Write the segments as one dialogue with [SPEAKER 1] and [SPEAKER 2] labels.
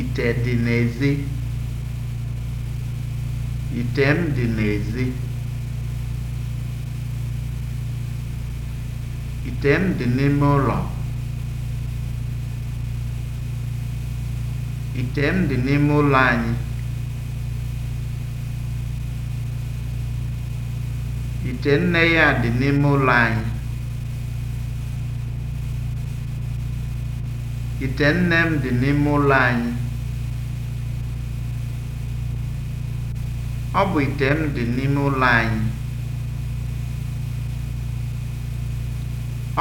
[SPEAKER 1] Ite dị n'ezi. Ite m dị n'ezi. Ite m dị n'ime ụlọ. Ite m dị n'ime ụlọ anyị. Ite nne ya dị n'ime ụlọ anyị. Ite nne m dị n'ime ụlọ anyị. Ọ bụ ite m dị n'ime ụlọ anyị.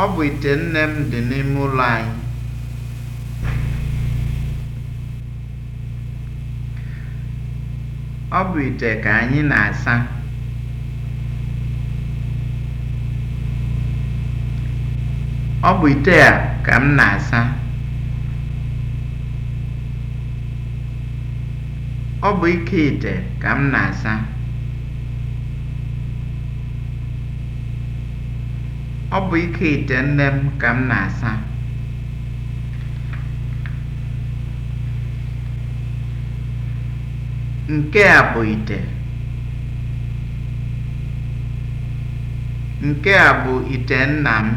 [SPEAKER 1] Ọ bụ ite nne m dị n'ime ụlọ anyị. Ọ bụ ite ka anyị na-asa. Ọ bụ ite a ka m na-asa. Ọ bụ ike ite ka m na-asa. Ọ bụ ike ite nne m ka m na-asa. Nke a bụ ite. Nke a bụ ite nna m.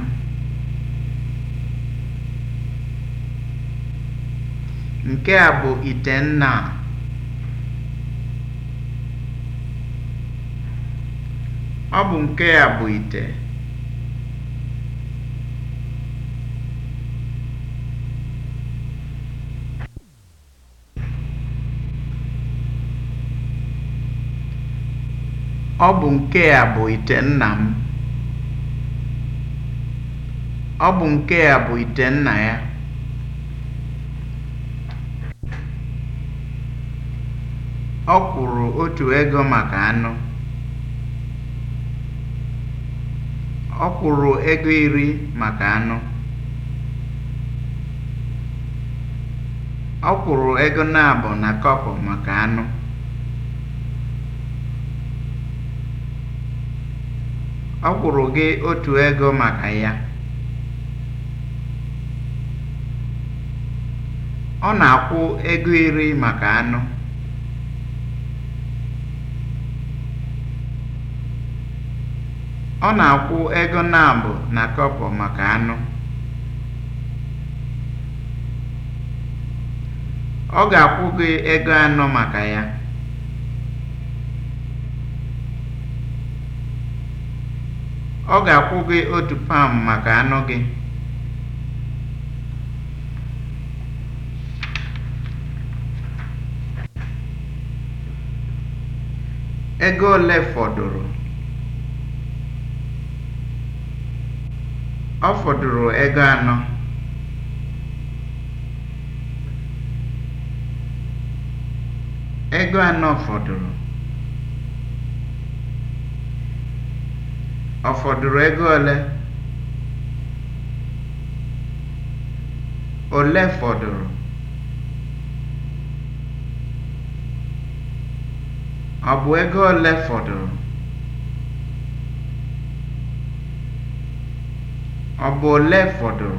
[SPEAKER 1] Nke a bụ ite nna a. Ọ bụ nke ya bụ ite. nna m. bụ ite nna ya. Ọ kwụrụ otu ego maka anụ. Ọ kwụrụ ego iri maka anụ. Ọ kwụrụ ego naabọ na kọpụ maka anụ. Ọ kwụrụ gị otu ego maka ya. Ọ na-akwụ ego iri maka anụ. Ọ na-akwụ ego naabụ na kọpọ maka anụ. Ọ ga-akwụ gị ego anọ maka ya. Ọ ga-akwụ gị otu pam maka anụ gị. Ego ole fọdụrụ? Ọ fọdụrụ ego anọ. Ego anọ fọdụrụ. Ọ fọdụrụ ego ole? Ole fọdụrụ? Ọ bụ ego ole fọdụrụ? Ọ bụ ole fọdụrụ?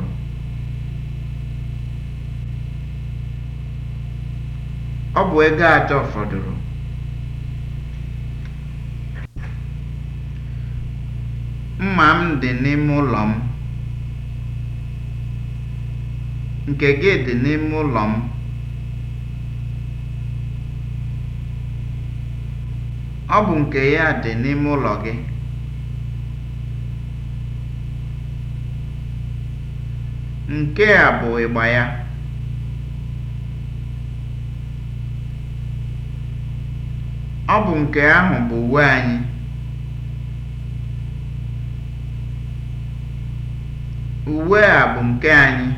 [SPEAKER 1] Ọ bụ ego atọ fọdụrụ. Mma m dị n'ime ụlọ m. Nke gị dị n'ime ụlọ m. Ọ bụ nke ya dị n'ime ụlọ gị. Nke a bụ ịgba ya. Ọ bụ nke ahụ bụ uwe anyị. a bụ nke anyị.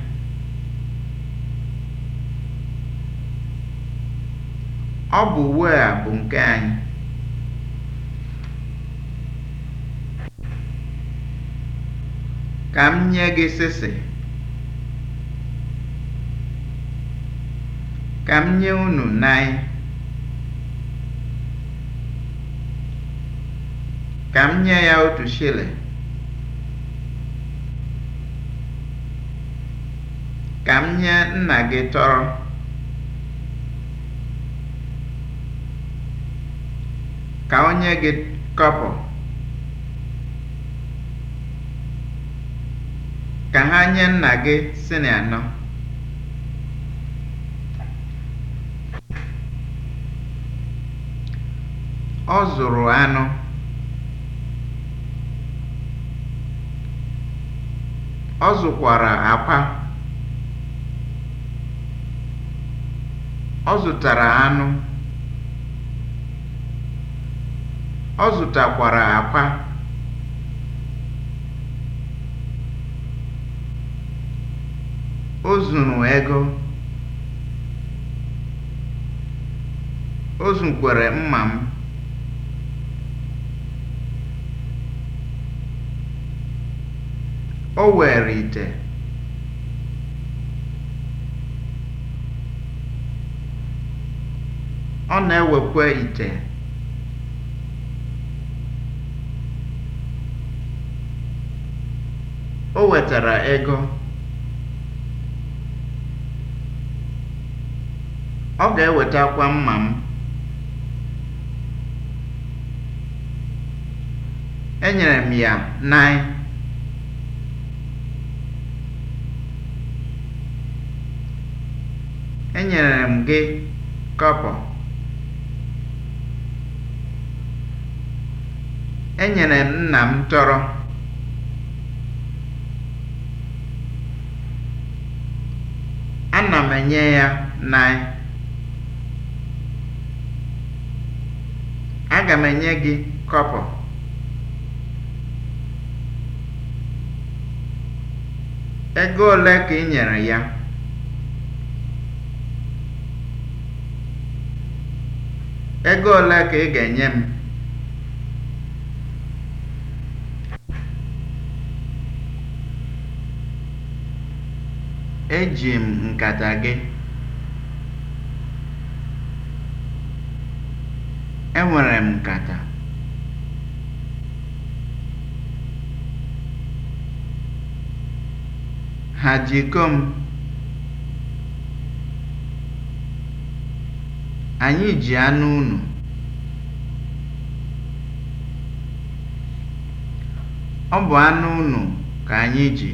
[SPEAKER 1] Ka m nye gị sịsị. Ka m nye unu nine. Ka m nye ya otu chile, Ka m nye nna gị tọrọ. Ka onye gị kọpụ. Ka ha nye nna gị sịnị anọ. Ọ zụrụ anụ. Ọ zụkwara àkwá. Ọ zụtara anụ. Ọ zụtakwara àkwá. O zụrụ ego. O zukwere mma m. O were ite. Ọ na-ewekwa ite. O wetara ego. Ọ ga-ewetakwa mma m. Enyere m ya naị. Enyere m gị kobo,enyere m nna m tọrọ. Ana m enye ya nịe. Aga m enye gị kọpọ Ego ole ka i nyere ya? Ego ole ka ị ga-enye m? Eji m nkata gị. Enwere m nkata. Ha ji m? Anyị ji anụ ụnụ, Ọ bụ anụ ụnụ ka anyị ji.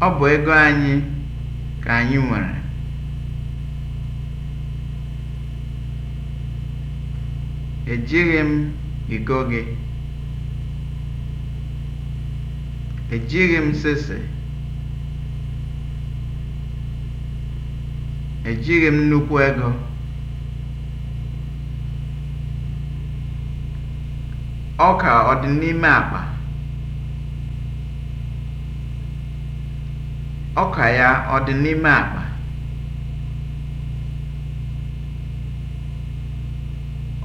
[SPEAKER 1] Ọ bụ ego anyị ka anyị nwere. Ejighị m iko gị. Ejighị m shịshị, ejighị m nnukwu ego, ọka ọ dị n'ime akpa? ọka ya ọ dị n'ime akpa?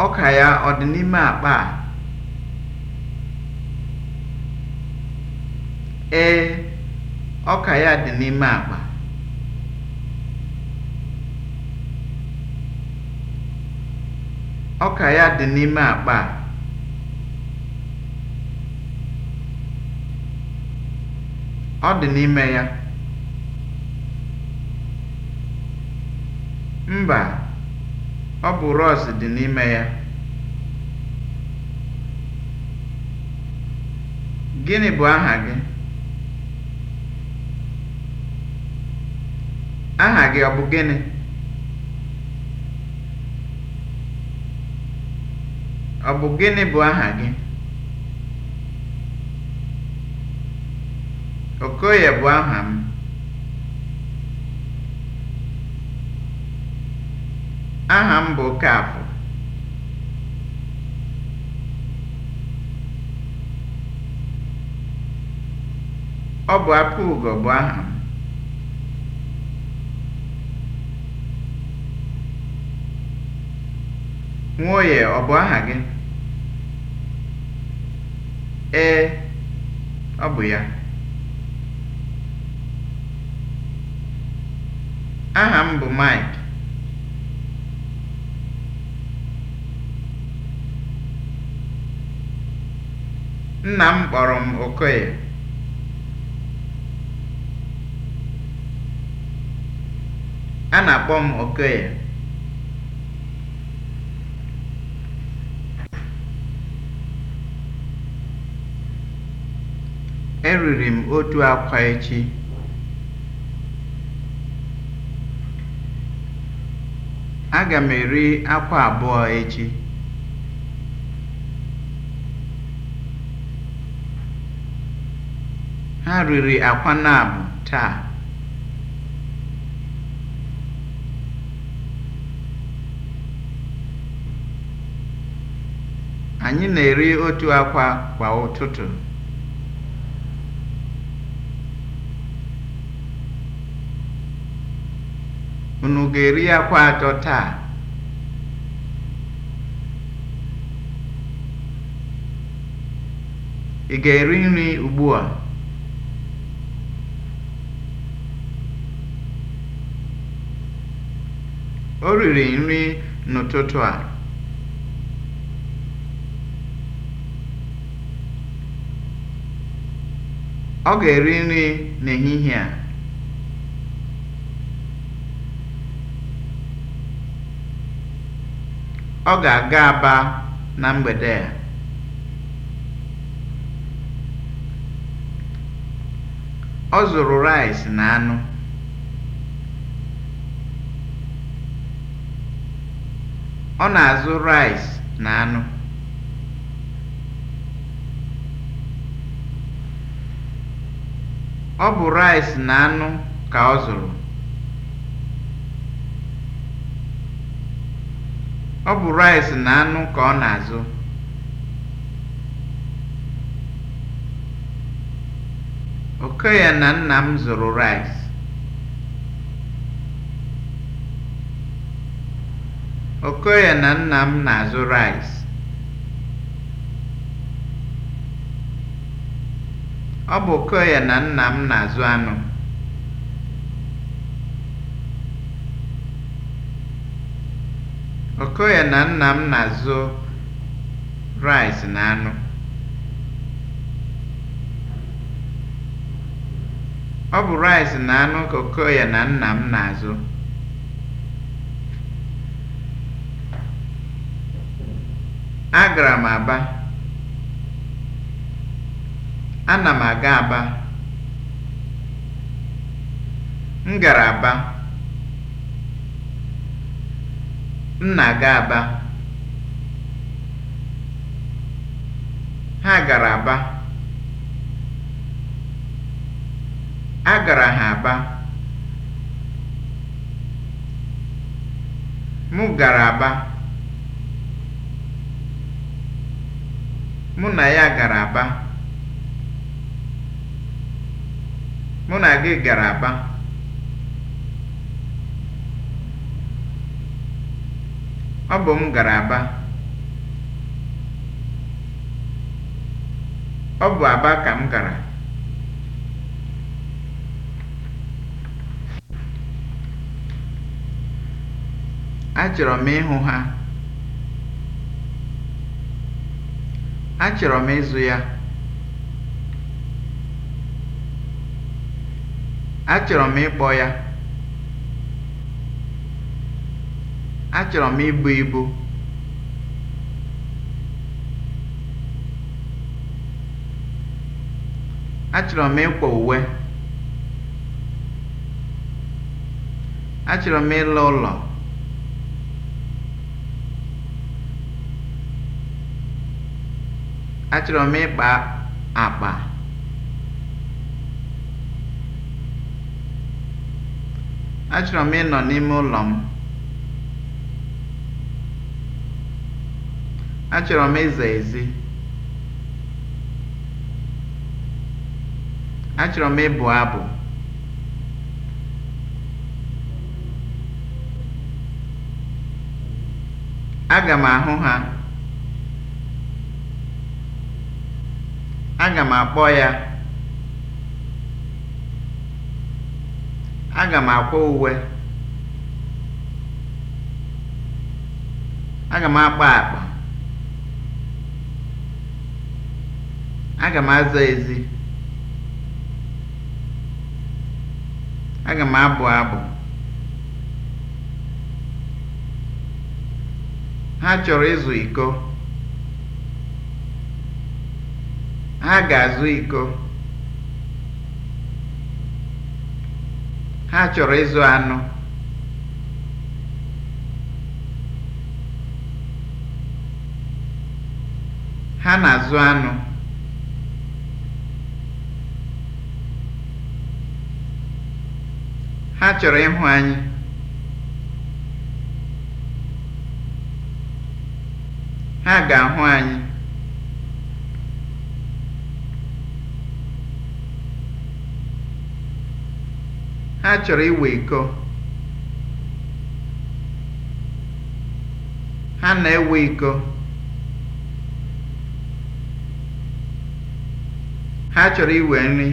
[SPEAKER 1] ọka ya ọ dị n'ime akpa a? Ee, ọka ya dị n'ime akpa. Ọka ya dị n'ime akpa a. Ọ dị n'ime ya. Mba, ọ bụ rọọsị dị n'ime ya. Gịnị bụ aha gị? Aha gị ọ bụ gịnị? Ọ bụ gịnị bụ aha gị? Okoye bụ aha m. Aha m bụ Okafọ. Ọ bụ ugo bụ aha m. Nwoye ọ bụ aha gị? Ee, ọ bụ ya. Aha m bụ Mike. Nna m kpọrọ m Okoye. A na-akpọ m Okoye. Eriri m otu akwa echi. Aga m eri akwa abụọ echi. Ha riri akwa nab taa. Anyị na-eri otu akwa kwa ụtụtụ. Unu ga-eri akwa atọ taa? Ị ga-eri nri ugbu a? O riri nri n'ụtụtụ a. Ọ ga-eri nri n'ehihie a. Ọ ga-aga Aba na mgbede a. Ọ zụrụ rice na anụ. Ọ na-azụ rice na anụ. Ọ bụ rice na anụ ka ọ zụrụ. Ọ bụ rice na anụ ka ọ na-azụ. Oke ya na nna m zụrụ rice. Okoye na nna m na-azụ rice. Ọ bụ Okoye na nna m na-azụ anụ. Okoye na nna m na-azụ rice na anụ. Ọ bụ rice na anụ ka Okoye na nna m na-azụ. Agara m Aba. Ana m aga Aba. M gara Aba. Nna na-aga Aba. Ha gara Aba. A gara ha Aba. mụ gara Aba. Mụ na ya gara Aba. Mụ na gị gara Aba. Ọ bụ m gara Aba. Ọ bụ Aba ka m gara. Achọrọ m ịhụ ha. Achọrọ m ịzụ ya. Achọrọ m ịkpọ ya. Achọrọ m ibu ibu Achọrọ m ịkwọ uwe Achọrọ m ịlụ ụlọ Achọrọ m ịkpa akpa Achọrọ m ịnọ n'ime ụlọ m Achọrọ m ịza ezi. Achọrọ m ịbụ abụ. Aga m ahụ ha. Aga m akpọ ya. Aga m akwa uwe. Aga m akpa akpa. Aga m aza ezi. Aga m abụ abụ. Ha chọrọ ịzụ iko. Ha ga-azụ iko. Ha chọrọ ịzụ anụ. Ha na-azụ anụ. chọrọ ịhụ anyị ha ga-ahụ anyị ha chọrọ iwe iko ha na-ewe iko ha chọrọ iwe nri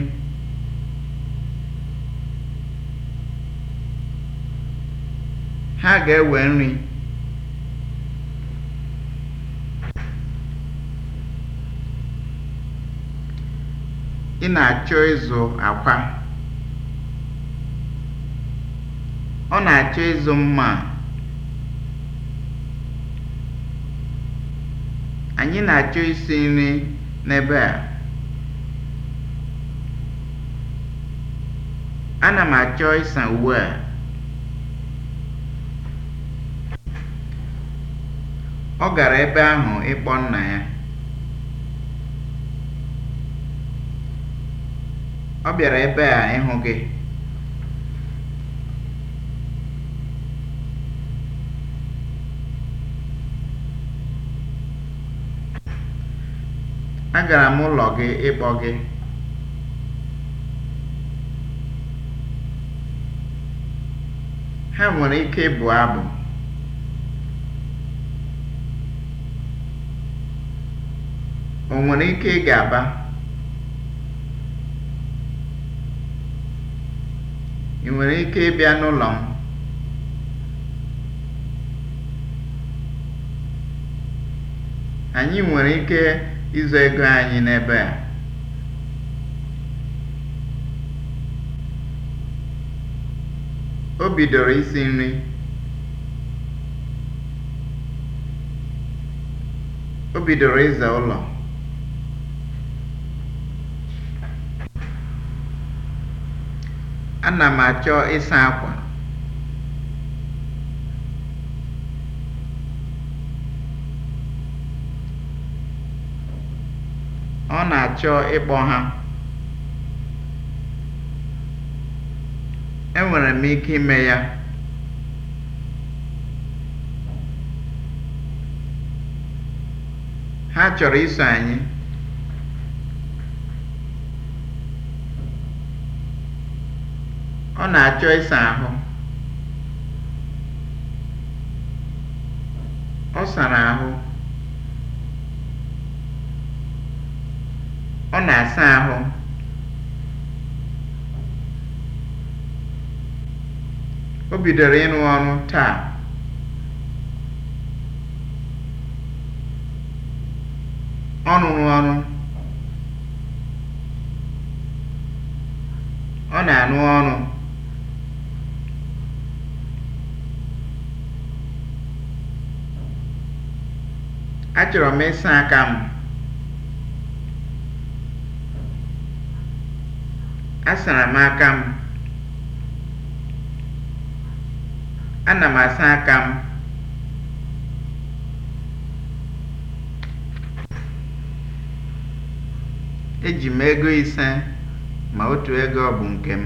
[SPEAKER 1] Ha ga-ewe nri. Ị na-achọ ịzụ akwa. Ọ na-achọ ịzụ mma Anyị na-achọ isi nri n'ebe a. Ana m achọ ịsa uwe a. Ọ gara ebe ahụ ịkpọ nna ya. Ọ bịara ebe a ịhụ gị. Agara m ụlọ gị ịkpọ gị. Ha nwere ike ịbụ abụ. O nwere ike ịga Aba? Ị nwere ike ịbịa n'ụlọ m? Anyị nwere ike ịzụ ego anyị n'ebe a. O bidoro isi nri. O bidoro ịza ụlọ. ana m achọ ịsa akwa ọ na-achọ ịkpọ ha enwere m ike ime ya ha chọrọ iso anyị Ọ na-achọ ịsa ahụ. Ọ sara ahụ. Ọ na-asa ahụ. O bidoro ịrụ ọnụ taa. Achọrọ e m ịsa aka m. Asara m aka m. Ana m asa aka m. Eji ego ise ma otu ego ọ bụ nke m.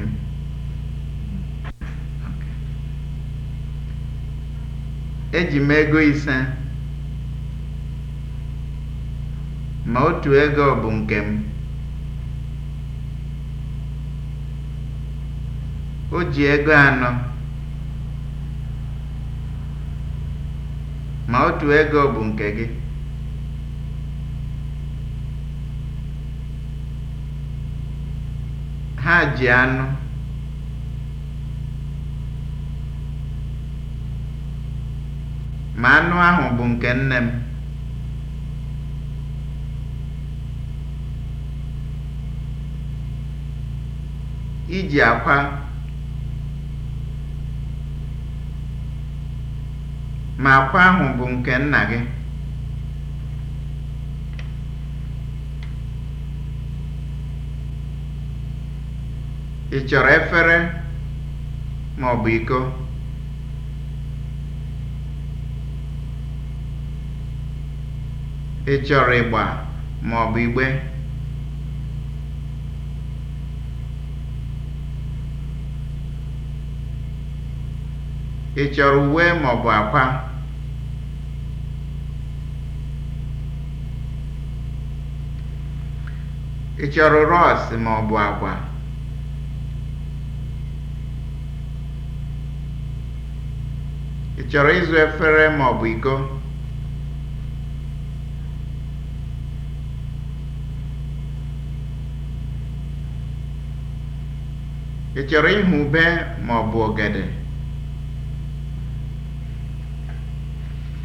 [SPEAKER 1] Eji m ego ise. Ma otu ego bụ nke m. O ji ego anọ ma otu ego bụ nke gị. Ha ji anụ. Ma anụ ahụ bụ nke nne m. iji akwa ma akwa ahụ bụ nke nna gị. Ị chọrọ efere ma ọ bụ iko? Ị chọrọ ịgba ma ọ bụ igbe? Ị chọrọ uwe maọbụ akwa? Ị chọrọ ọ maọbụ akwa, Ị chọrọ ịzụ efere maọbụ iko? Ị chọrọ ịhụ ube maọbụ ogede.